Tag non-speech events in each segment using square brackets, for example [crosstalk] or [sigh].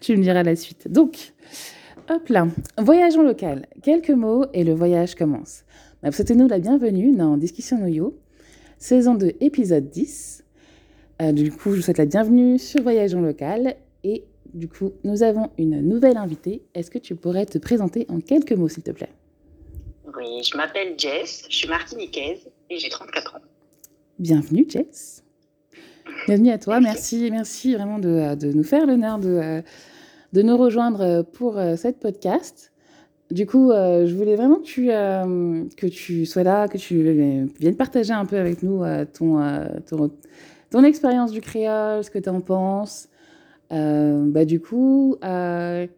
tu me diras la suite. Donc, hop là, voyage en local. Quelques mots et le voyage commence. ma Souhaitez-nous la bienvenue dans Discussion Noyo, saison 2, épisode 10. Euh, du coup, je vous souhaite la bienvenue sur Voyage en local. Et du coup, nous avons une nouvelle invitée. Est-ce que tu pourrais te présenter en quelques mots, s'il te plaît Oui, je m'appelle Jess, je suis martiniquaise et j'ai 34 ans. Bienvenue, Jess. Bienvenue à toi, merci, merci vraiment de, de nous faire l'honneur de, de nous rejoindre pour euh, cette podcast. Du coup, euh, je voulais vraiment que tu, euh, que tu sois là, que tu viennes partager un peu avec nous euh, ton, euh, ton, ton, expérience du créole, ce que tu en penses. bah, du coup, ouais,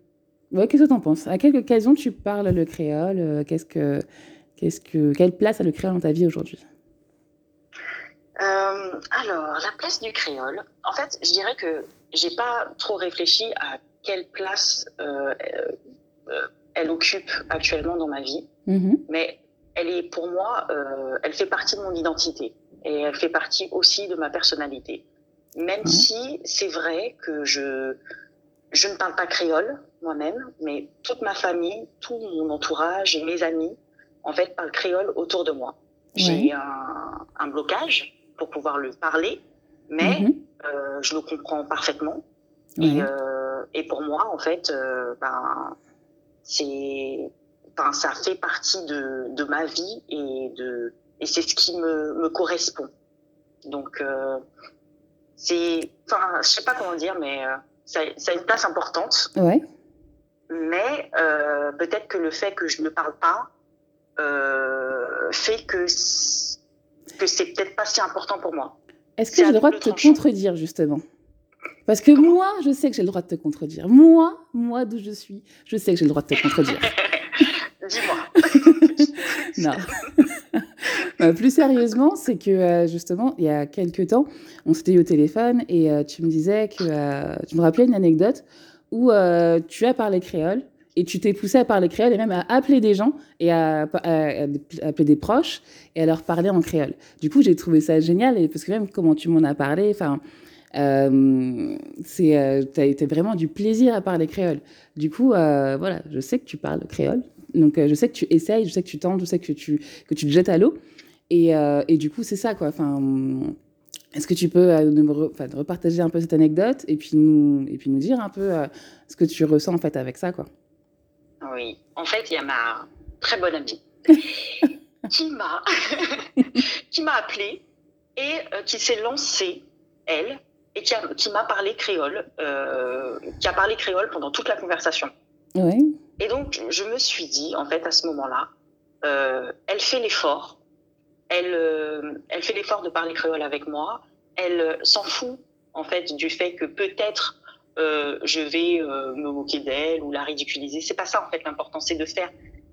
qu'est-ce que tu en penses À quelle occasion tu parles le créole qu'est-ce que, ce que, Quelle place a le créole dans ta vie aujourd'hui Euh, alors, la place du créole. En fait, je dirais que j'ai pas trop réfléchi à quelle place euh, euh, euh elle occupe actuellement dans ma vie, mhm. mais elle est pour moi, euh, elle fait partie de mon identité et elle fait partie aussi de ma personnalité. Même mmh. si c'est vrai que je je ne parle pas créole moi-même, mais toute ma famille, tout mon entourage et mes amis, en fait, parlent créole autour de moi. J'ai oui. un, un blocage pour pouvoir le parler, mais mm -hmm. euh, je le comprends parfaitement. Et, euh, et, pour moi, en fait, euh, ben, c'est, ben, ça fait partie de, de, ma vie et, de, et c'est ce qui me, me correspond. Donc, euh, c'est, enfin, je sais pas comment dire, mais euh, ça, ça, a une place importante. oui Mais peut-être que le fait que je ne parle pas fait que que c'est peut-être pas si important pour moi. Est-ce que j'ai le droit de te tranchant. contredire, justement Parce que Comment moi, je sais que j'ai le droit de te contredire. Moi, moi d'où je suis, je sais que j'ai le droit de te contredire. [laughs] Dis-moi. [laughs] non. Euh, [laughs] plus sérieusement, c'est que euh, justement, il y a quelques temps, on s'était eu au téléphone et euh, tu me disais que euh, tu me rappelais une anecdote où euh, tu as parlé créole et tu t'es poussé à parler créole et même à appeler des gens et à, à, à, à, appeler des proches et à leur parler en créole. Du coup, j'ai trouvé ça génial et parce que même comment tu m'en as parlé, enfin, euh, c'est, euh, t'as vraiment du plaisir à parler créole. Du coup, euh, voilà, je sais que tu parles créole, donc euh, je sais que tu essayes, je sais que tu tentes, je sais que tu que tu te jettes à l'eau et, euh, et du coup, c'est ça quoi. Enfin. Est-ce que tu peux euh, nous re, repartager un peu cette anecdote et puis nous, et puis nous dire un peu euh, ce que tu ressens en fait avec ça quoi Oui. En fait, il y a ma très bonne amie [laughs] qui m'a [laughs] qui m'a appelée et euh, qui s'est lancée elle et qui, a, qui m'a parlé créole, euh, qui a parlé créole pendant toute la conversation. Oui. Et donc, je me suis dit, en fait, à ce moment-là, euh, elle fait l'effort, elle, euh, elle fait l'effort de parler créole avec moi, elle euh, s'en fout, en fait, du fait que peut-être euh, je vais euh, me moquer d'elle ou la ridiculiser. C'est pas ça en fait l'important, c'est de faire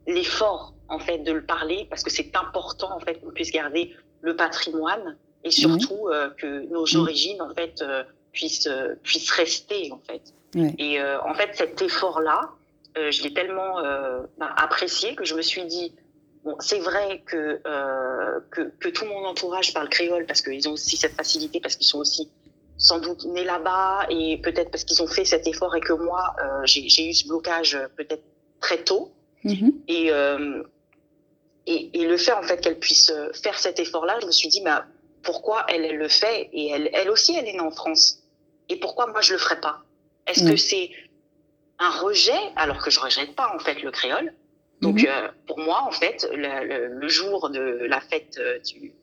l'effort en fait de le parler parce que c'est important en fait qu'on puisse garder le patrimoine et surtout mmh. euh, que nos mhm. origines en fait euh, puissent euh, puissent rester en fait. Mmh. Et euh, en fait cet effort là, je l'ai tellement bah, apprécié que je me suis dit Bon, c'est vrai que, que, que tout mon entourage parle créole parce qu'ils ont aussi cette facilité parce qu'ils sont aussi sans doute nés là-bas et peut-être parce qu'ils ont fait cet effort et que moi, euh, j'ai eu ce blocage euh, peut-être très tôt. Mmh. Et, euh, et, et, le fait, en fait, qu'elle puisse euh, faire cet effort-là, je me suis dit, bah, pourquoi elle, elle le fait et elle, elle aussi, elle est née en France. Et pourquoi moi, je le ferais pas Est-ce mmh. que c'est un rejet, alors que je ne rejette pas, en fait, le créole donc, mmh. euh, pour moi, en fait, le, le, le jour de la fête euh, du,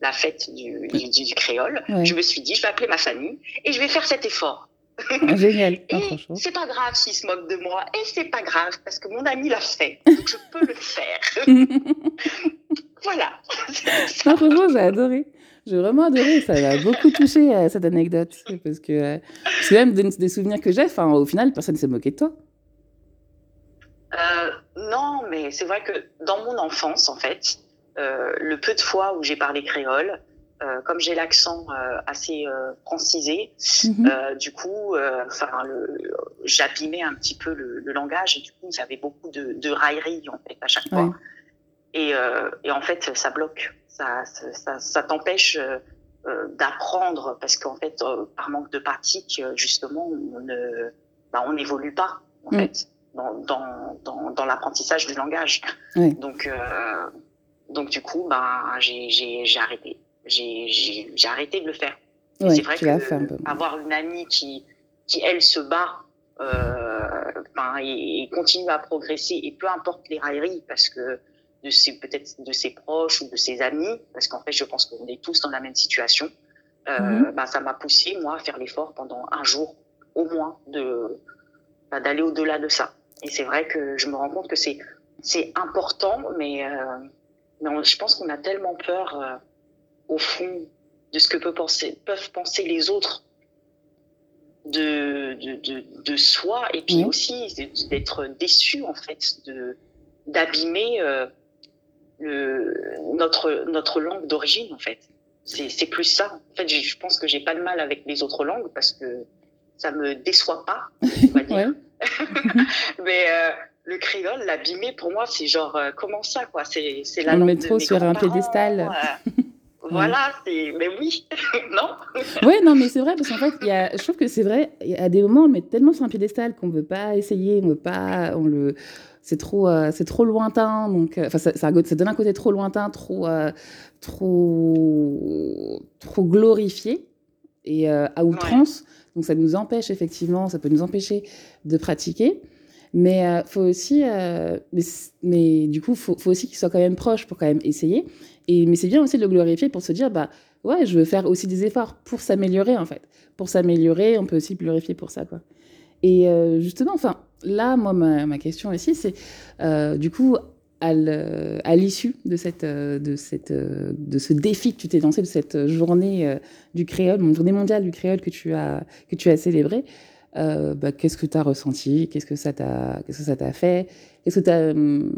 la fête du, du, du créole, ouais. je me suis dit, je vais appeler ma famille et je vais faire cet effort. Ah, génial. [laughs] Ah, et oh, c'est pas grave s'ils se moquent de moi, et c'est pas grave parce que mon ami l'a fait, [laughs] donc je peux le faire. [laughs] voilà. Non, franchement, j'ai adoré. J'ai vraiment adoré, ça m'a beaucoup touché à euh, cette anecdote. Parce que euh, c'est même des, des, souvenirs que j'ai, enfin, au final, personne ne s'est moqué de toi. Euh, non, mais c'est vrai que dans mon enfance, en fait, Euh, le peu de fois où j'ai parlé créole, euh, comme j'ai l'accent euh, assez euh, francisé, mhm. euh, du coup, euh, enfin, j'abîmais un petit peu le, le, langage et du coup, il y avait beaucoup de, de railleries en fait à chaque fois. Ouais. Et, et, en fait, ça bloque, ça, ça, ça, ça t'empêche d'apprendre parce qu'en fait, par manque de pratique, justement, on ne, bah, on n'évolue pas en mm. fait dans, dans, dans, dans l'apprentissage du langage. Oui. Donc donc du coup, bah, j'ai arrêté. J'ai arrêté de le faire. Ouais, c'est vrai que un peu. avoir une amie qui, qui elle, se bat euh, ben, et, et, continue à progresser, et peu importe les railleries, parce que de ses peut-être de ses proches ou de ses amis, parce qu'en fait, je pense qu'on est tous dans la même situation. Euh, mmh. ben, ça m'a poussé moi à faire l'effort pendant un jour au moins de ben, d'aller au-delà de ça. Et c'est vrai que je me rends compte que c'est c'est important, mais euh, Mais on, je pense qu'on a tellement peur, euh, au fond, de ce que peut penser, peuvent penser les autres de, de, de, de soi, et puis mmh. aussi d'être déçu, en fait, d'abîmer euh, notre, notre langue d'origine, en fait. C'est plus ça. En fait, je pense que j'ai pas de mal avec les autres langues parce que ça me déçoit pas, on va [laughs] dire. [laughs] Mais euh, le créole, l'abîmer, pour moi, c'est genre, euh, comment ça, quoi C'est la On le met trop sur un piédestal. Euh, [laughs] voilà, c'est. Mais oui, [laughs] non Oui, non, mais c'est vrai, parce qu'en fait, y a... je trouve que c'est vrai, à des moments, on le met tellement sur un piédestal qu'on ne veut pas essayer, on veut pas. On le... C'est trop, euh, c'est trop lointain, donc. Euh, enfin, ça, ça, ça, donne un côté trop lointain, trop. Euh, trop. trop glorifié et euh, à outrance. Ouais. Donc ça nous empêche effectivement, ça peut nous empêcher de pratiquer. Mais euh, faut aussi, euh, mais, mais, du coup, faut, faut aussi qu'il soit quand même proche pour quand même essayer. Et mais c'est bien aussi de le glorifier pour se dire bah ouais, je veux faire aussi des efforts pour s'améliorer en fait. Pour s'améliorer, on peut aussi glorifier pour ça quoi. Et euh, justement, enfin là, moi ma, ma question aussi c'est euh, du coup à l'issue de, cette, euh, de, cette, euh, de ce défi que tu t'es lancé, de cette journée du créole, journée mondiale du créole que tu as, que tu as célébrée, euh, bah, qu'est-ce que tu as ressenti, qu'est-ce que ça t'a, qu'est-ce que ça t'a fait, qu'est-ce que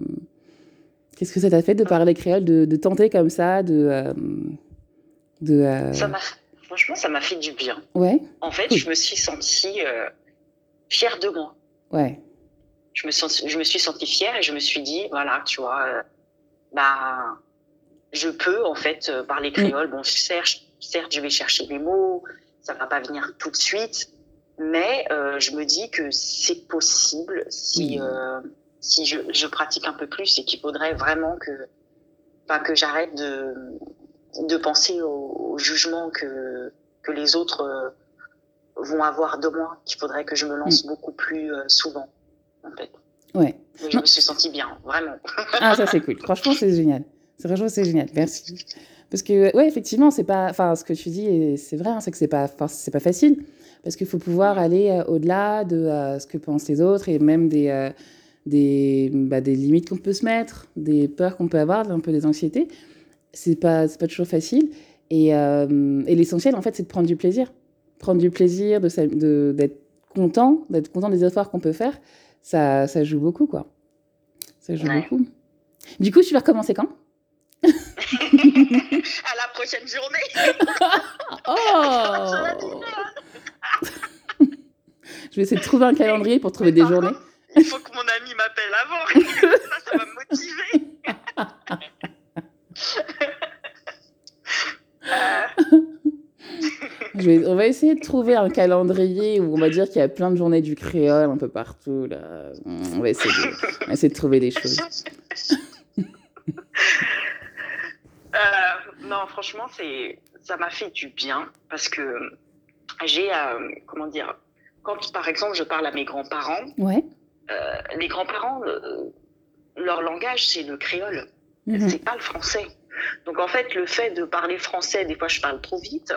qu'est-ce que ça t'a fait de ah. parler créole, de, de tenter comme ça, de, euh, de euh... Ça franchement, ça m'a fait du bien. Ouais. En fait, oui. je me suis sentie euh, fière de moi. Ouais. Je me, sens, je me suis sentie fière et je me suis dit, voilà, tu vois, euh, bah, je peux en fait euh, parler mm. créole. Mmh. Bon, certes, certes, je vais chercher mes mots, ça va pas venir tout de suite, Mais euh, je me dis que c'est possible si, euh, si je, je, pratique un peu plus et qu'il faudrait vraiment que, que j'arrête de, de penser au, au jugement que, que les autres euh, vont avoir de moi, qu'il faudrait que je me lance mm. beaucoup plus souvent, en fait. Ouais. je me suis sentie bien, vraiment. ah, ça c'est cool. Franchement, c'est génial. Franchement, c'est génial. Merci. Parce que, ouais, effectivement, c'est pas. Enfin, ce que tu dis, c'est vrai, hein, c'est que c'est pas, c'est pas facile. parce qu'il faut pouvoir aller euh, au-delà de euh, ce que pensent les autres et même des, euh, des, bah, des limites qu'on peut se mettre, des peurs qu'on peut avoir, un peu des anxiétés. C'est pas, pas toujours facile. Et, euh et l'essentiel, en fait, c'est de prendre du plaisir. Prendre du plaisir, d'être de, d'être content, d'être content des efforts qu'on peut faire, ça, ça joue beaucoup, quoi. Ça joue ouais. beaucoup. Du coup, tu vas recommencer quand [laughs] à la prochaine journée. [laughs] [laughs] oh je vais essayer de trouver un calendrier pour trouver des journées. il faut que mon ami m'appelle avant. ça, [laughs] ça va me motiver. Je vais, on va essayer de trouver un calendrier où on va dire qu'il y a plein de journées du créole un peu partout. Là. On, va essayer de, on va essayer de trouver des choses. euh, non, franchement, ça m'a fait du bien parce que j'ai, euh, comment dire, quand, par exemple, je parle à mes grands-parents, ouais. euh, les grands-parents, euh, leur langage, c'est le créole. Mmh. C'est pas le français. Donc, en fait, le fait de parler français, des fois, je parle trop vite.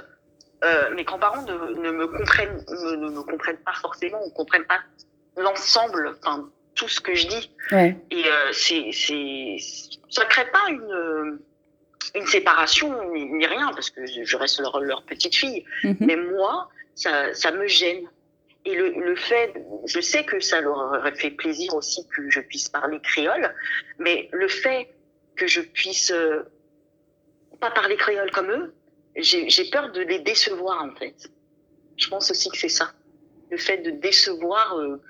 Euh, mes grands-parents ne, ne, me comprennent, ne, ne me comprennent pas forcément, ne comprennent pas l'ensemble, enfin, tout ce que je dis. Ouais. Et euh, c' est c' est ça crée pas une une séparation ni, rien, parce que je reste leur, leur petite fille. Mmh. Mais moi, ça, ça me gêne. Et le, le, fait, je sais que ça leur aurait fait plaisir aussi que je puisse parler créole, mais le fait que je puisse euh, pas parler créole comme eux, j'ai peur de les décevoir en fait. Je pense aussi que c'est ça. Le fait de décevoir, euh,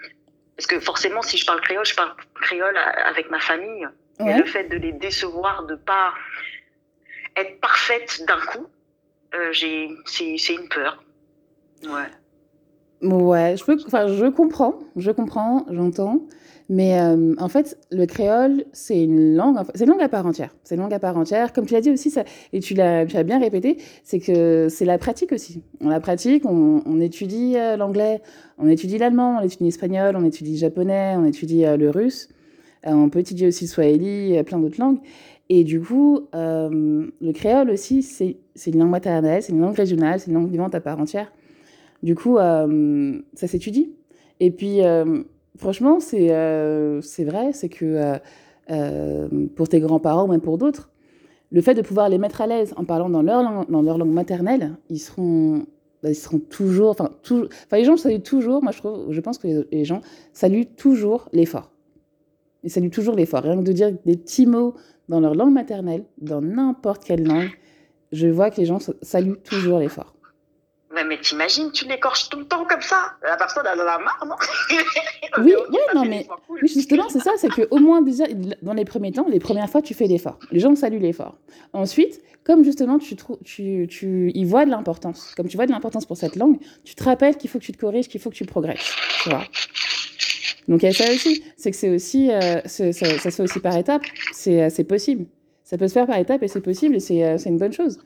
parce que forcément si je parle créole, je parle créole avec ma famille. Ouais. Mais le fait de les décevoir, de pas être parfaite d'un coup, euh, c'est une peur. Ouais. Ouais, je peux, je comprends, je comprends, j'entends. Mais euh, en fait, le créole, c'est une langue, c'est une langue à part entière. C'est une langue à part entière. Comme tu l'as dit aussi, ça, et tu l'as, tu as bien répété, c'est que c'est la pratique aussi. On la pratique, on, on étudie euh, l'anglais, on étudie l'allemand, on étudie l'espagnol, on étudie le japonais, on étudie euh, le russe. Euh, on peut étudier aussi le swahili, plein d'autres langues. Et du coup, euh, le créole aussi, c'est une langue maternelle, c'est une langue régionale, c'est une langue vivante à part entière. Du coup, euh, ça s'étudie. Et puis, euh, franchement, c'est euh, c'est vrai, c'est que pour tes grands-parents, même pour d'autres, le fait de pouvoir les mettre à l'aise en parlant dans leur, langue, dans leur langue maternelle, ils seront, ils seront toujours, enfin, toujours, enfin, les gens saluent toujours, moi je, trouve, je pense que les, les gens saluent toujours l'effort. Ils saluent toujours l'effort. Rien que de dire des petits mots dans leur langue maternelle, dans n'importe quelle langue, je vois que les gens saluent toujours l'effort. Mais, mais t'imagines, tu l'écorches tout le temps comme ça La personne, elle en a marre, non [laughs] Oui, okay, ouais, non, mais cool. oui, justement, c'est ça, c'est qu'au moins, déjà, dans les premiers temps, les premières fois, tu fais l'effort. Les gens saluent l'effort. Ensuite, comme justement, tu, tu, tu tu y vois de l'importance, comme tu vois de l'importance pour cette langue, tu te rappelles qu'il faut que tu te corriges, qu'il faut que tu progresses, tu vois donc il y a ça aussi, c'est que c'est aussi, euh, ça, ça, se fait aussi par étapes, euh, c'est possible. Ça peut se faire par étapes et c'est possible et c'est euh, une bonne chose.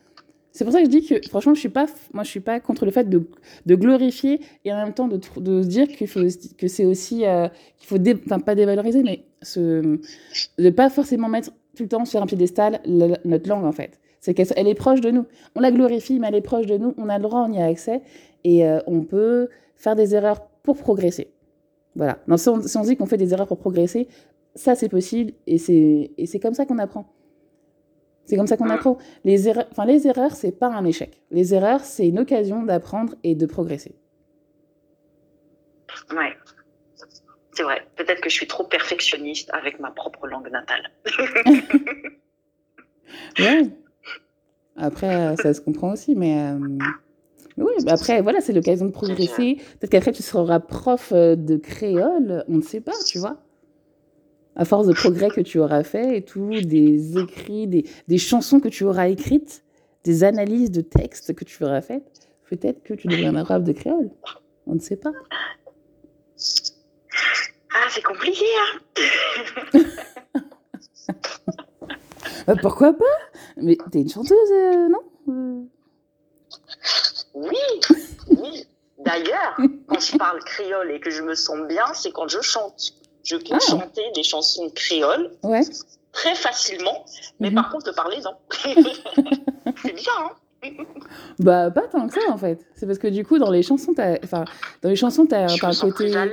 C'est pour ça que je dis que, franchement, je suis pas, moi, je suis pas contre le fait de, de glorifier et en même temps de, de se dire qu'il faut, que c'est aussi, euh, qu'il faut, dé, enfin, pas dévaloriser, mais se, de pas forcément mettre tout le temps sur un piédestal la, notre langue, en fait. C'est qu'elle elle est proche de nous. On la glorifie, mais elle est proche de nous. On a le droit, on y a accès et euh, on peut faire des erreurs pour progresser. Voilà. Non, si, on, si on dit qu'on fait des erreurs pour progresser, ça c'est possible et et c'est comme ça qu'on apprend. C'est comme ça qu'on ah. apprend. Les erreurs, enfin, les erreurs, c'est pas un échec. Les erreurs, c'est une occasion d'apprendre et de progresser. Ouais. C'est vrai. Peut-être que je suis trop perfectionniste avec ma propre langue natale. [laughs] ouais. Après, euh, ça se comprend aussi, mais. Euh... oui, après, voilà, c'est l'occasion de progresser. Peut-être qu'après, tu seras prof euh, de créole, on ne sait pas, tu vois. à force de progrès que tu auras fait et tout, des écrits, des, des chansons que tu auras écrites, des analyses de textes que tu auras faites, peut-être que tu deviendras arabe de créole. On ne sait pas. Ah, c'est compliqué, hein bah, [laughs] euh, Pourquoi pas Mais t'es une chanteuse, euh, non Oui, oui. D'ailleurs, quand je parle créole et que je me sens bien, c'est quand je chante. Je peux ah. chanter des chansons créoles ouais. très facilement, mais mm -hmm. par contre, parler, non. [laughs] c'est bien hein bah pas tant que ça en fait c'est parce que du coup dans les chansons t'as enfin dans les chansons t'as un côté plus à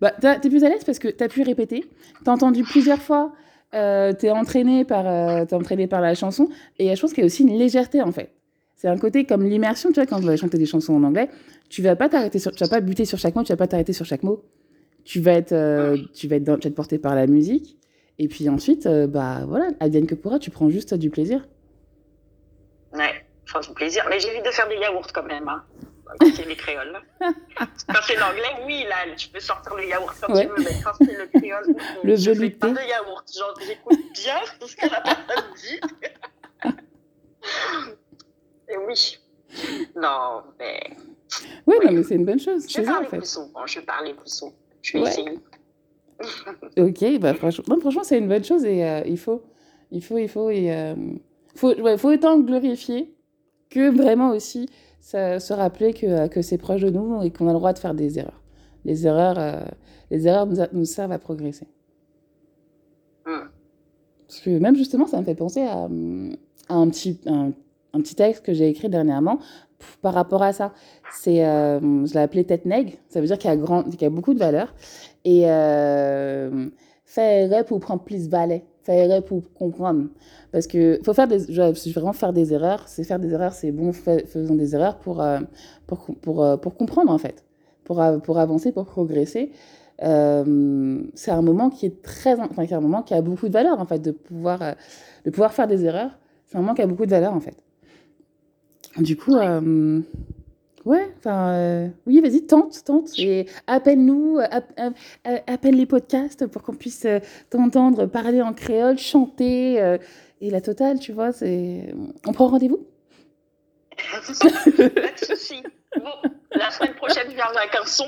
bah t'es plus à l'aise parce que t'as pu répéter t'as entendu plusieurs fois euh, t'es entraîné par euh, es entraîné par la chanson et je pense qu'il y a aussi une légèreté en fait c'est un côté comme l'immersion tu vois quand tu vas chanter des chansons en anglais tu vas pas t'arrêter sur tu vas pas buter sur chaque mot tu vas pas t'arrêter sur chaque mot tu vas être, euh, tu vas être, tu vas être porté par la musique. Et puis ensuite, euh, bah voilà, advienne que pourra, tu prends juste du plaisir. Ouais, prends du plaisir. Mais j'évite de faire des yaourts quand même. Hein. Quand c'est les créoles. [laughs] quand c'est l'anglais, oui, là, tu peux sortir le yaourt quand ouais. tu veux, mais quand c'est le créole, [laughs] le je pas de yaourt. Genre, j'écoute bien tout ce que la personne dit. Et oui. Non, mais. oui, non, mais c'est une bonne chose. Je vais parler plus souvent. Je vais parler plus souvent. Tracing. Ouais. ok, bah franchement, non, franchement c'est une bonne chose et euh, il faut, il faut, il faut, et, euh, faut, ouais, faut autant glorifier que vraiment aussi ça, se rappeler que, euh, que c'est proche de nous et qu'on a le droit de faire des erreurs. Les erreurs, euh, les erreurs nous, a, nous, servent à progresser. Parce que même justement, ça me fait penser à, à un, petit, un, un petit texte que j'ai écrit dernièrement par rapport à ça, c'est, euh, je l'ai appelé tête nègre, ça veut dire qu'il y a, grand, qu'il y a beaucoup de valeur. Et euh, faire pour prendre plus valet, faire pour comprendre. Parce que faut faire des, je vais vraiment faire des erreurs, c'est faire des erreurs, c'est bon, fais, faisons des erreurs pour, euh, pour, pour, euh, pour, comprendre en fait, pour, pour avancer, pour progresser. Euh, c'est un moment qui est très, enfin, c'est un moment qui a beaucoup de valeur en fait, de pouvoir, euh, de pouvoir faire des erreurs. C'est un moment qui a beaucoup de valeur en fait. Du coup, euh, ouais, enfin, euh, oui, vas-y, tente, tente, et appelle-nous, euh, euh, appelle les podcasts pour qu'on puisse euh, t'entendre parler en créole, chanter, euh, et la totale, tu vois, c'est... On prend rendez-vous [laughs] Pas de Bon, la semaine prochaine, je viens avec un son.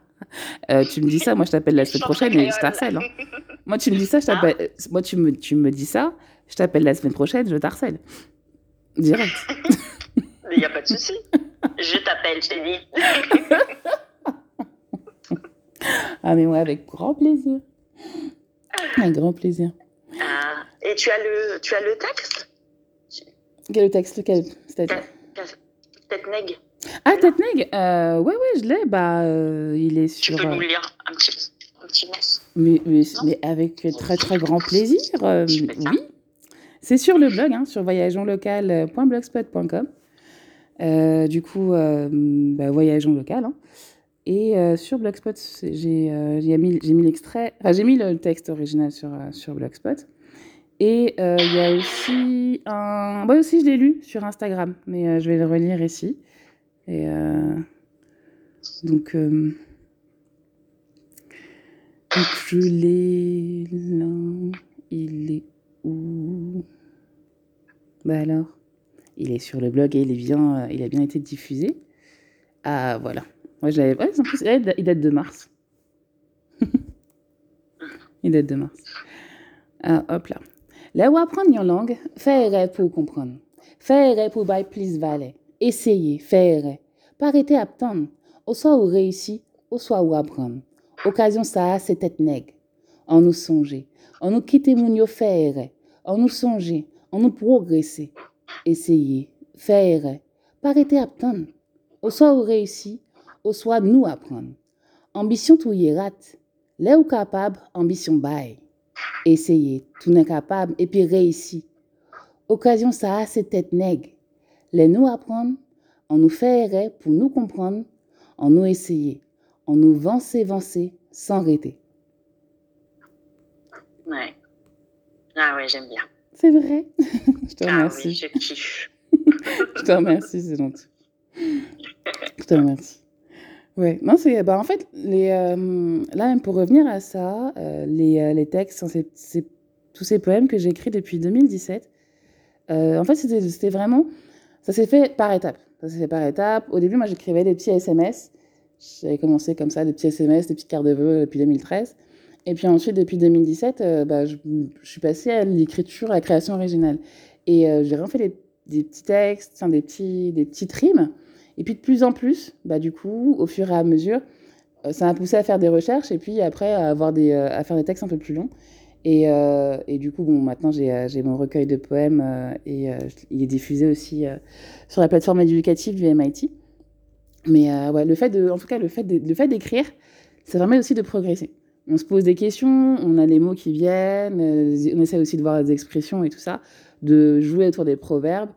[laughs] Euh, tu me dis ça, moi je t'appelle la semaine prochaine Hein. [laughs] Moi tu me dis ça, je t'appelle. Moi tu me, tu me dis ça, je t'appelle la semaine prochaine, je t'harcèle. Direct. [laughs] Mais il n'y a pas de souci. Je t'appelle, chérie. [laughs] ah, mais moi, ouais, avec grand plaisir. Avec grand plaisir. Ah, et tu as le, tu as le texte Quel texte Lequel C'est-à-dire Tête neg. Ah, tête neg euh, Ouais, ouais, je l'ai. Bah, euh, il est sur. Tu peux nous euh, lire un petit, un petit mais, mais, mais, avec très, très grand plaisir. Euh, oui. C'est sur le blog, hein, sur voyageonlocal.blogspot.com. Euh, du coup, euh, bah, voyageons local. Hein. Et euh, sur Blogspot, euh, j'ai mis, mis l'extrait, enfin, mis le texte original sur, euh, sur Blogspot. Et euh, il y a aussi un. Moi aussi, je l'ai lu sur Instagram, mais je vais le relire ici. Et donc, donc, je l'ai Il est ou... Bah alors, il est sur le blog et il, est bien, euh, il a bien été diffusé. Ah voilà. Moi, je l'avais. Ouais, en plus, il date de mars. [laughs] il date de mars. Ah, hop là. Là où apprendre une langue, faire pour comprendre. Faire pour by please valer. Essayer, faire. Pas arrêter à attendre. Au soit où réussit, au soit où apprendre. Occasion ça, c'est tête nègre. en nous songer, en nous qui témoignons faire, en nous songer, en nous progresser, essayer, faire, pas arrêter à attendre. Au soit ou réussi, au soit nous apprendre. Ambition tout y rate. Là où capable, ambition bail. Essayer, tout n'est capable, et puis réussir. Occasion ça a ses têtes nègres. Les nous apprendre, on nous faire pour nous comprendre, on nous essayer, on nous vancer, vancer, sans arrêter. Ouais. Ah ouais, j'aime bien. C'est vrai. [laughs] je te remercie. Ah oui, je kiffe. [laughs] je te remercie, c'est gentil. Je te remercie. Oui, non, c'est. Bah, en fait, les, euh, là, pour revenir à ça, euh, les, euh, les, textes, c est, tous ces poèmes que j'écris depuis 2017, euh, en fait, c'était vraiment. Ça s'est fait par étapes. Ça s'est fait par étapes. Au début, moi, j'écrivais des petits SMS. J'avais commencé comme ça, des petits SMS, des petites cartes de vœux euh, depuis 2013. Et puis ensuite, depuis 2017, euh, bah, je, je, suis passée à l'écriture, à la création originale. Et euh, j'ai vraiment fait des, des petits textes, des, petits, des petits rimes. Et puis de plus en plus, bah, du coup, au fur et à mesure, euh, ça m'a poussé à faire des recherches et puis après à, avoir des, euh, à faire des textes un peu plus longs. Et, euh, et, du coup, bon, maintenant j'ai euh, mon recueil de poèmes euh, et euh, il est diffusé aussi sur la plateforme éducative du MIT. Mais ouais, le fait de, en tout cas, le fait d'écrire, ça permet aussi de progresser. on se pose des questions, on a les mots qui viennent, euh, on essaie aussi de voir les expressions et tout ça, de jouer autour des proverbes.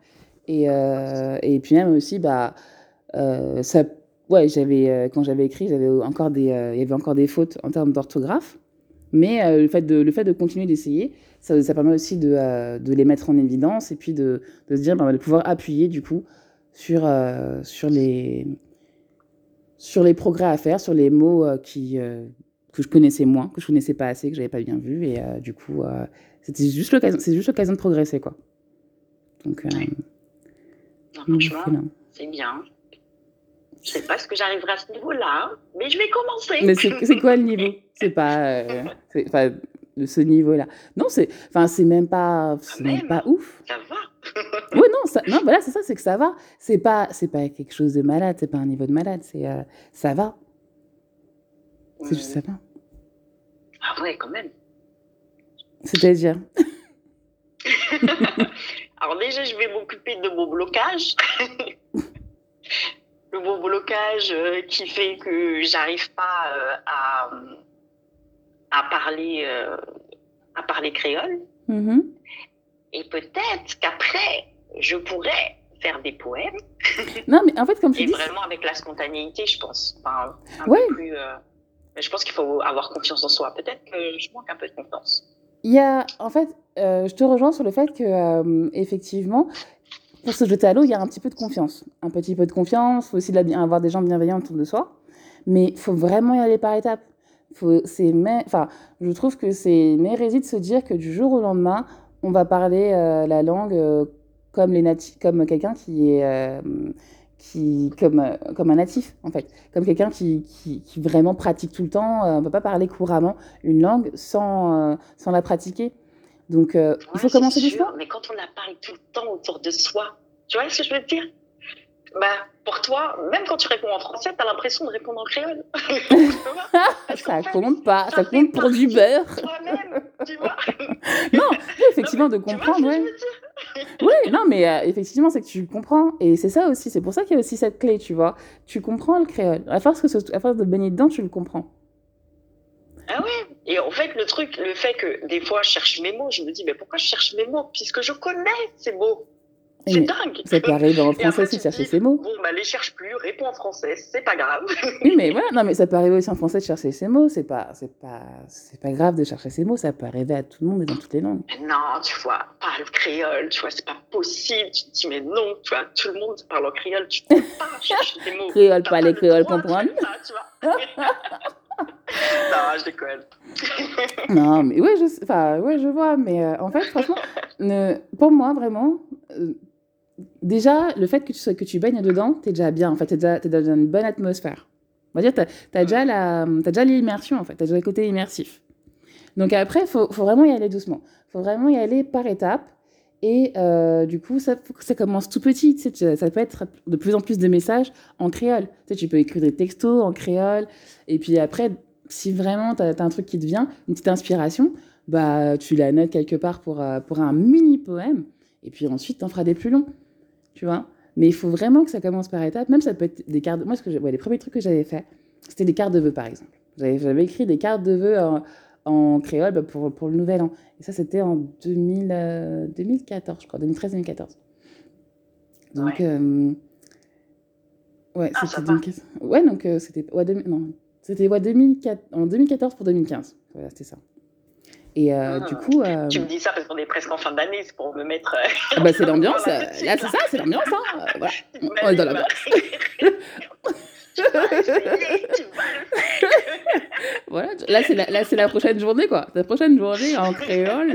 Et, euh, et puis même aussi, bah, euh, ça, ouais, j'avais, euh, quand j'avais écrit, j'avais encore des, euh, il y avait encore des fautes en termes d'orthographe. Mais le, fait de, le fait de continuer d'essayer, ça, ça, permet aussi de, de, les mettre en évidence et puis de, de se dire, bah, de pouvoir appuyer du coup sur, sur les sur les progrès à faire, sur les mots euh, qui, euh, que je connaissais moins, que je connaissais pas assez, que j'avais pas bien vu. Et euh, du coup, euh, c'était juste l'occasion, c'est juste l'occasion de progresser, quoi. Donc, euh, oui. c'est bien. Je sais pas ce que j'arriverai à ce niveau-là, mais je vais commencer. Mais c'est quoi le niveau C'est pas, euh, [laughs] enfin, de ce niveau-là. Non, c'est, enfin, c'est même pas, c'est même, même pas ouf. Ça va. [laughs] oui, non, ça, non, voilà, c'est ça, c'est que ça va. C'est pas, c'est pas quelque chose de malade, c'est pas un niveau de malade, c'est, euh, ça va. C'est juste ça va. Ah ouais, quand même. C'est-à-dire [laughs] Alors déjà, je vais m'occuper de mon blocage. [laughs] Le mon blocage euh, qui fait que j'arrive pas euh, à, à, parler, euh, à parler créole. Mmh. Et peut-être qu'après, je pourrais faire des poèmes. non, mais en fait, comme tu Et dis... vraiment avec la spontanéité, je pense. Enfin, un ouais. peu plus, euh, Mais je pense qu'il faut avoir confiance en soi. Peut-être que je manque un peu de confiance. Il y a, en fait, euh, je te rejoins sur le fait que, euh, effectivement, pour se jeter à l'eau, il y a un petit peu de confiance. Un petit peu de confiance, il faut aussi de la, avoir des gens bienveillants autour de soi. Mais il faut vraiment y aller par étapes. Faut, mais, enfin, je trouve que c'est une hérésie de se dire que du jour au lendemain, on va parler euh, la langue euh, comme, les nati comme quelqu'un qui est euh, qui, comme, euh, comme un natif, en fait, comme quelqu'un qui, qui, qui, vraiment pratique tout le temps. Euh, on ne peut pas parler couramment une langue sans, euh, sans la pratiquer. Donc, ouais, il faut commencer du choix. Mais quand on la parle tout le temps autour de soi, tu vois ce que je veux dire bah, pour toi, même quand tu réponds en français, tu as l'impression de répondre en créole. [laughs] ça compte pas, ça, ça compte pour du beurre. Toi-même, tu vois. [laughs] non, effectivement, non, de comprendre, vois, ouais. oui, non, mais euh, effectivement, c'est que tu comprends. Et c'est ça aussi, c'est pour ça qu'il y a aussi cette clé, tu vois. Tu comprends le créole. À force, que ce, à force de baigner dedans, tu le comprends. Ah ouais Et en fait, le truc, le fait que des fois, je cherche mes mots, je me dis, mais pourquoi je cherche mes mots Puisque je connais ces mots. C'est oui, dingue. C'est qu'il arrive en français aussi de chercher ces mots. Bon, bah, les cherche plus, réponds en français, c'est pas grave. oui, mais voilà, non, mais ça peut arriver aussi en français de chercher ces mots, c'est pas, c'est pas, c'est pas grave de chercher ces mots, ça peut arriver à tout le monde et dans toutes les langues. Non, tu vois, parle créole, tu vois, c'est pas possible, tu te dis, mais non, tu vois, tout le monde parle en créole, tu peux pas [laughs] chercher des mots. Créole, pas, les créoles, comprendre. [laughs] non, je déconne. non, mais ouais je, ouais, je vois, mais euh, en fait, franchement, [laughs] ne, pour moi, vraiment, euh, déjà, le fait que tu, sois, que tu baignes dedans, t'es déjà bien, en fait, t'es déjà, es dans une bonne atmosphère. On va dire, t'as as déjà la, as déjà l'immersion, en fait, t'as déjà le côté immersif. Donc après, faut, faut vraiment y aller doucement. Faut vraiment y aller par étapes. Et euh, du coup, ça, ça commence tout petit. Tu sais, ça peut être de plus en plus de messages en créole. Tu, sais, tu peux écrire des textos en créole. Et puis après, si vraiment tu as, as, un truc qui te vient, une petite inspiration, bah, tu la notes quelque part pour, euh, pour un mini poème. Et puis ensuite, tu en feras des plus longs. tu vois. Mais il faut vraiment que ça commence par étapes. Même ça peut être des cartes. Moi, ce que je... ouais, les premiers trucs que j'avais fait, c'était des cartes de vœux, par exemple. J'avais écrit des cartes de vœux en, en créole pour, pour, le nouvel an. Et ça, c'était en 2000, euh, 2014, je crois, 2013-2014. Donc, ouais. Euh... ouais ah, c'était 2015. Ouais, donc euh, c'était. Ouais, de... Non, c'était ouais, 2004... en 2014 pour 2015. Voilà, c'était ça. Et euh, mmh. du hmm. coup. Euh, tu me dis ça parce qu'on est presque en fin d'année, c'est pour me mettre. Euh... Ah bah, c'est [laughs] l'ambiance. Euh, là, c'est ça, c'est l'ambiance. Hein. Euh, voilà. On est oh, dans l'ambiance. [laughs] voilà, là c'est la, la prochaine journée quoi. La prochaine journée en créole,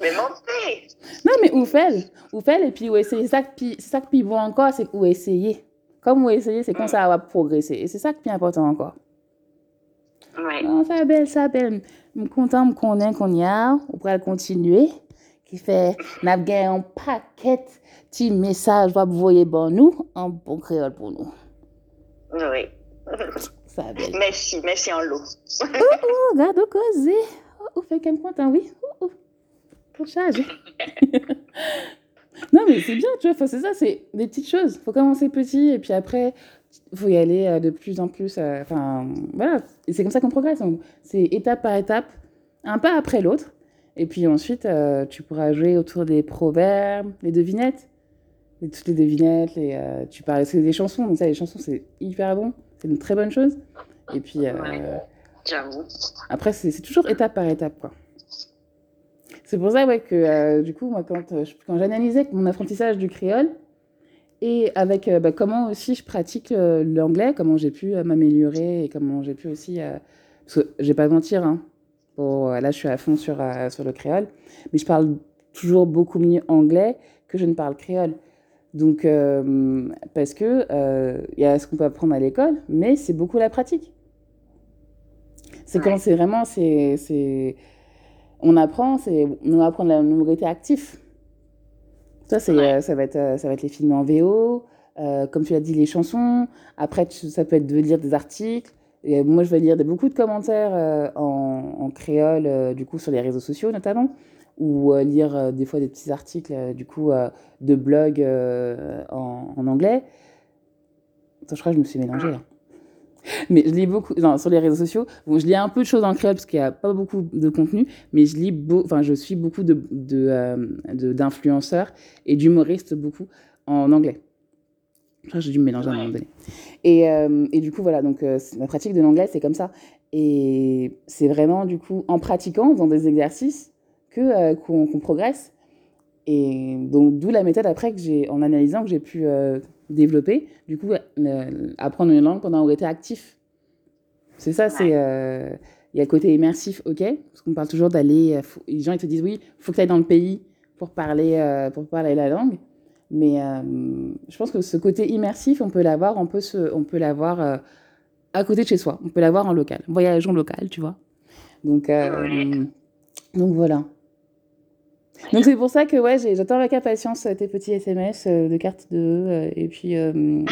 Mais montez! Non, mais ou fait, ou fait, et puis ou essayer. C'est ça qui est bon encore, c'est ou essayer. Comme ou essayer, c'est comme mm. ça va progresser. Et c'est ça qui est important encore. Oui. Non, ça belle, ça belle. Je suis content de connaître qu'on y a. On pourra continuer. Qui fait, n'a gagné un paquet de messages pour vous voyez nous, en bon créole pour nous. Oui. Ça belle. Merci, merci en l'eau. oh, oh, regarde, causé. Oh, content, oui. Oh, oh. pour [laughs] non, mais c'est bien, tu vois, c'est ça, c'est des petites choses. faut commencer petit et puis après, faut y aller euh, de plus en plus. Euh, enfin, euh, voilà, c'est comme ça qu'on progresse. C'est étape par étape, un pas après l'autre. Et puis ensuite, euh, tu pourras jouer autour des proverbes, les devinettes. Et toutes les devinettes, les, euh, tu parles, c'est des chansons. Donc ça, les chansons, c'est hyper bon. C'est une très bonne chose. Et puis... Euh, ouais, Après, c'est toujours étape par étape, quoi. C'est pour ça ouais, que, euh, du coup, moi, quand, euh, quand j'analysais mon apprentissage du créole, et avec euh, bah, comment aussi je pratique euh, l'anglais, comment j'ai pu m'améliorer et comment j'ai pu aussi. parce que je vais pas mentir, hein, pour, là je suis à fond sur, sur le créole, mais je parle toujours beaucoup mieux anglais que je ne parle créole. Donc, euh, parce que il euh, y a ce qu'on peut apprendre à l'école, mais c'est beaucoup la pratique. C'est ouais. quand c'est vraiment, c'est, on apprend, c'est on va apprendre la minorité active. Ça, c'est, ouais. euh, ça, va être, euh, ça va être les films en VO, euh, comme tu l'as dit, les chansons. Après, tu, ça peut être de lire des articles. Et moi, je vais lire des, beaucoup de commentaires euh, en, en, créole, euh, du coup, sur les réseaux sociaux notamment, ou euh, lire des fois des petits articles, du coup, de blogs en, en, anglais. Attends, je crois que je me suis mélangée ah. là. [laughs] mais je lis beaucoup non, sur les réseaux sociaux. Bon, je lis un peu de choses en créole parce qu'il n'y a pas beaucoup de contenu, mais je lis, beau, enfin, je suis beaucoup de, de, euh, d'influenceurs et d'humoristes beaucoup en anglais. Enfin, j'ai dû me mélanger à un moment donné. Et, euh, et du coup, voilà, donc euh, la pratique de l'anglais, c'est comme ça. Et c'est vraiment, du coup, en pratiquant, dans des exercices, que, euh, qu'on, qu'on progresse. Et donc, d'où la méthode après, que j'ai, en analysant, que j'ai pu euh, développer, du coup, euh, apprendre une langue pendant qu'on était actif. C'est ça, ouais. c'est. Euh, il y a le côté immersif, ok, parce qu'on parle toujours d'aller. Euh, les gens, ils te disent, oui, faut que tu ailles dans le pays pour parler, pour parler la langue. Mais euh, je pense que ce côté immersif, on peut l'avoir, on peut, se, on peut l'avoir euh, à côté de chez soi, on peut l'avoir en local, voyageons local, tu vois. Donc, euh, donc voilà. Donc c'est pour ça que ouais, j'attends avec impatience tes petits SMS euh, de carte de euh, et puis euh,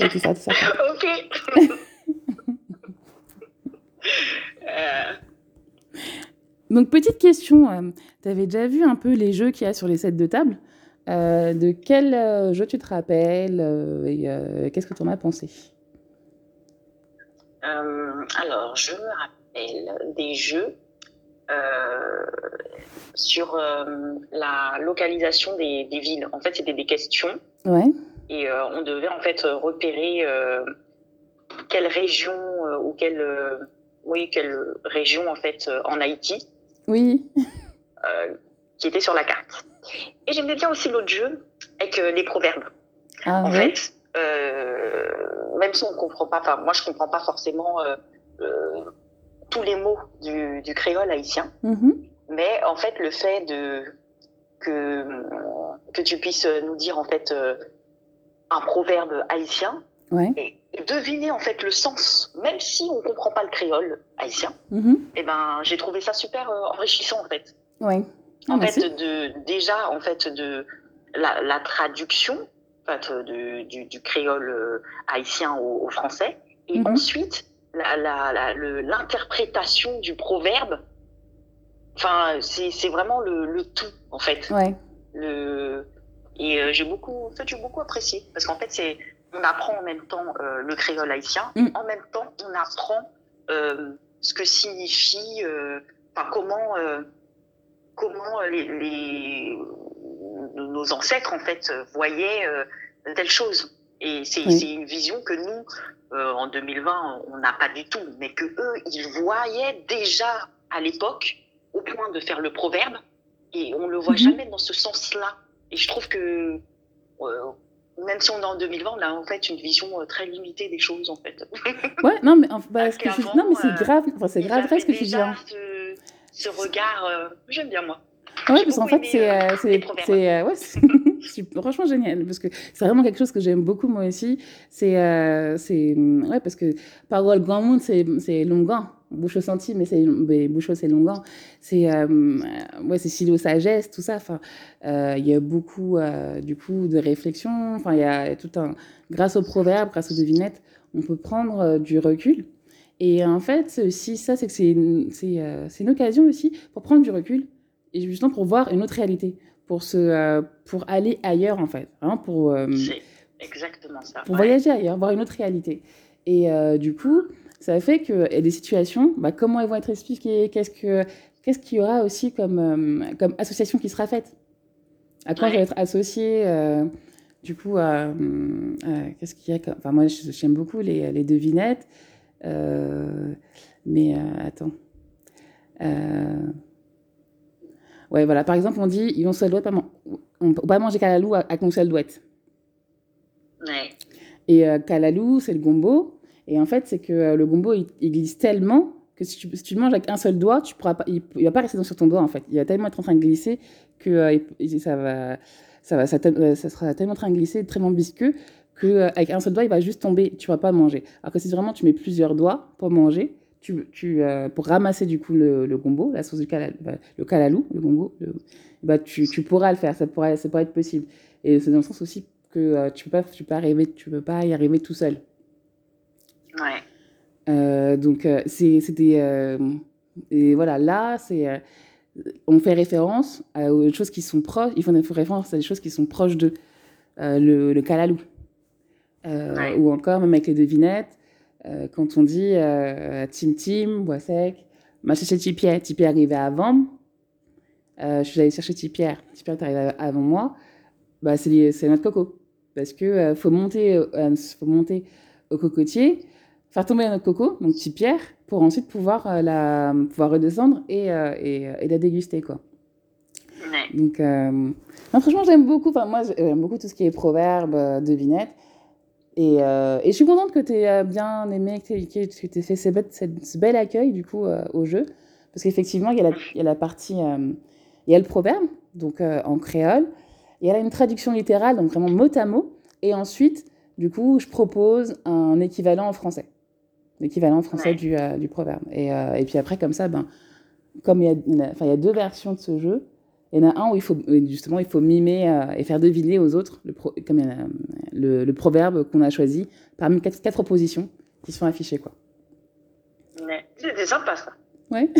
et tout ça, tout ça. [laughs] Ok. Euh. Donc petite question, euh, tu avais déjà vu un peu les jeux qu'il y a sur les sets de table euh, De quel jeu tu te rappelles et qu'est-ce que tu en as pensé Alors je me rappelle des jeux Euh, sur euh, la localisation des, des, villes. En fait, c'était des questions. Ouais. Et euh, on devait en fait repérer quelle région ou quelle, oui, quelle région en fait en Haïti. Oui. qui était sur la carte. Et j'aimais bien aussi l'autre jeu avec les proverbes. Ah, en oui. fait, euh, même si on ne comprend pas, enfin moi je ne comprends pas forcément euh, euh, tous les mots du, du créole haïtien. Mmh. Mais en fait, le fait de, que, que tu puisses nous dire en fait euh, un proverbe haïtien ouais. et, deviner en fait le sens, même si on ne comprend pas le créole haïtien, mmh. et eh ben, j'ai trouvé ça super euh, enrichissant en fait. oui Ah, en merci. fait, de, déjà, en fait, de la, la traduction en fait, de, du, du, créole euh, haïtien au, au français, et mmh. ensuite l'interprétation du proverbe. Enfin, c'est vraiment le, le, tout, en fait. Ouais. Le, et euh, j'ai beaucoup, en fait, du beaucoup apprécié. Parce qu'en fait, on apprend en même temps euh, le créole haïtien, mm. en même temps, on apprend euh, ce que signifie, euh, enfin, comment, euh, comment euh, les, les, nos ancêtres, en fait, voyaient telle chose. Et c'est oui. une vision que nous, euh, en 2020, on n'a pas du tout, mais que eux, ils voyaient déjà à l'époque, au point de faire le proverbe, et on ne le voit mmh. jamais dans ce sens-là. Et je trouve que, euh, même si on est en 2020, on a en fait une vision euh, très limitée des choses, en fait. [laughs] ouais, non, mais bah, c'est ce euh, grave, enfin, c'est grave vrai ce que tu dis. Ce, ce regard, euh, j'aime bien moi. Ouais, parce qu'en fait, c'est. Euh, ouais, [laughs] franchement génial parce que c'est vraiment quelque chose que j'aime beaucoup moi aussi. C'est, euh, c'est, ouais, parce que parole grand monde, c'est, c'est longan. Bouchot senti, mais c'est, mais Bouchot, c'est longan. C'est, euh, ouais, c'est Chilo sagesse, tout ça. Enfin, euh, il euh, y a beaucoup, euh, du coup, de réflexion. Enfin, il y a tout un, grâce aux proverbes, grâce aux devinettes, on peut prendre euh, du recul. Et en fait, si ça, c'est que c'est, c'est, c'est une occasion aussi pour prendre du recul et justement pour voir une autre réalité. pour, se, euh, pour aller ailleurs, en fait. Hein, pour, euh, C'est exactement ça. Pour ouais. voyager ailleurs, voir une autre réalité. Et euh, du coup, ça fait que et des situations, bah, comment elles vont être expliquées, qu'est-ce que qu'est-ce qu'il y aura aussi comme euh, comme association qui sera faite, à quoi ouais. je vais être associé euh, du coup, a euh, qu'est-ce qu'il y a, enfin moi j'aime beaucoup les, les devinettes, mais attends. Ouais, voilà. Par exemple, on dit, ils ont seul doit pas, man on peut pas manger calalou à, à qu'on seul douette. Ouais. Et euh, calalou, c'est le gombo. Et en fait, c'est que euh, le gombo, il, il, glisse tellement que si tu, si tu, le manges avec un seul doigt, tu pourras pas, il, ne va pas rester sur ton doigt, en fait. Il va tellement être en train de glisser que euh, il, ça va, ça va, ça, euh, ça, sera tellement en train de glisser, tellement visqueux, que euh, avec un seul doigt, il va juste tomber. Tu ne vas pas manger. Alors que si vraiment tu mets plusieurs doigts pour manger, tu, tu euh, pour ramasser du coup le, le gombo, la sauce du calal, bah, le calalou, le gombo, le, bah, tu, tu, pourras le faire, ça pourrait, ça pourrait être possible. Et c'est dans le sens aussi que euh, tu ne peux, pas, tu peux, pas arriver, tu peux pas y arriver tout seul. Ouais. Euh, donc, euh, c'est des. Euh, et voilà, là, c'est. Euh, on fait référence à des choses qui sont proches, il faut faire référence à des choses qui sont proches de le, le calalou. Ouais. Ou encore, même avec les devinettes, Euh, quand on dit euh, Tim Tim, sec m'a cherché Tipierre. Tipierre arrivait avant. Euh, je suis allée chercher Tipierre. Tipierre est arrivé avant moi. Bah, c'est notre coco. Parce que euh, faut, monter, faut monter au cocotier, faire tomber notre coco, donc Tipierre, pour ensuite pouvoir, la, pouvoir redescendre et, et, et, la déguster. quoi. Donc, euh... non, franchement, j'aime beaucoup. moi, j'aime beaucoup tout ce qui est proverbe, devinette. Et, euh, et je suis contente que tu aies euh, bien aimé, que tu aies, que aies fait ce, ce bel accueil du coup euh, au jeu. Parce qu'effectivement, il, il y, a la partie, il y a le proverbe, donc en créole. Il y a une traduction littérale, donc vraiment mot à mot. Et ensuite, du coup, je propose un équivalent en français. L'équivalent français ouais. du, euh, du, proverbe. Et, euh, et, puis après, comme ça, ben, comme il y, a, il y a deux versions de ce jeu, il y en a un où il faut, justement, il faut mimer euh, et faire deviner aux autres, le pro, comme il y en a, le, le proverbe qu'on a choisi parmi quatre, quatre propositions qui sont affichées. Quoi. mais c'est sympa ça. Ouais. [laughs]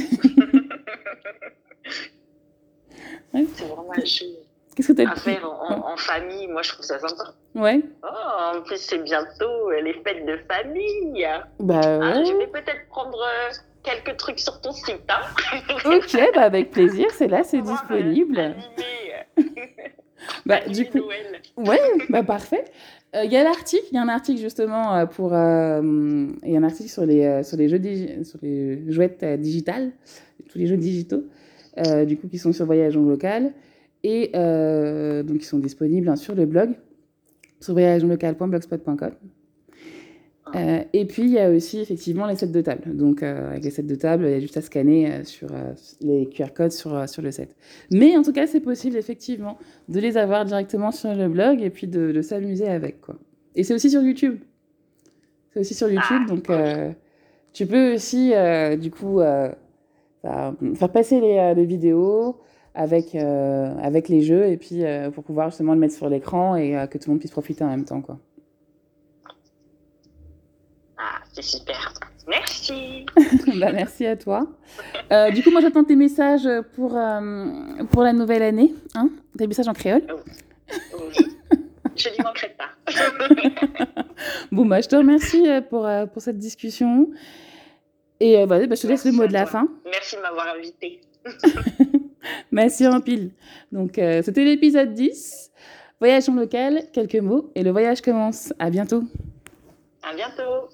ouais. C'est vraiment un jeu. Qu'est-ce que tu as à faire en, en, famille, moi je trouve ça sympa. Ouais. Oh, en plus c'est bientôt les fêtes de famille. Bah ah, ouais. alors je vais peut-être prendre euh, quelques trucs sur ton site. Hein ok, bah avec plaisir, c'est là, c'est [laughs] disponible. [laughs] [laughs] Bah, du coup, Noël. ouais, bah parfait. Il euh, y a l'article, il y a un article justement euh, pour, il euh, y a un article sur les euh, sur les jeux sur les jouettes euh, digitales, tous les jeux digitaux, euh, du coup qui sont sur Voyage en local et donc qui sont disponibles hein, sur le blog sur voyageonlocal.blogspot.com Euh, et puis, il y a aussi effectivement les sets de table. Donc, euh, avec les sets de table, il y a juste à scanner euh, sur euh, les QR codes sur, euh, sur le set. Mais en tout cas, c'est possible effectivement de les avoir directement sur le blog et puis de, de s'amuser avec. Quoi. Et c'est aussi sur YouTube. C'est aussi sur ah, YouTube. donc, euh, tu peux aussi, du coup, faire passer les, les vidéos avec, avec les jeux et puis pour pouvoir justement le mettre sur l'écran et que tout le monde puisse profiter en même temps. quoi. c'est super. Merci. [laughs] bah, merci à toi. Euh, du coup, moi, j'attends tes messages pour, euh, pour la nouvelle année. Hein tes messages en créole. Oh. Oui. je n'y manquerai pas. [laughs] bon, ben je te remercie euh, pour, euh, pour cette discussion. Et bah, euh, bah, je te laisse le mot de la toi. fin. Merci de m'avoir invité. [laughs] merci en pile. Donc, euh, c'était l'épisode 10. Voyage en local, quelques mots, et le voyage commence. À bientôt. À bientôt.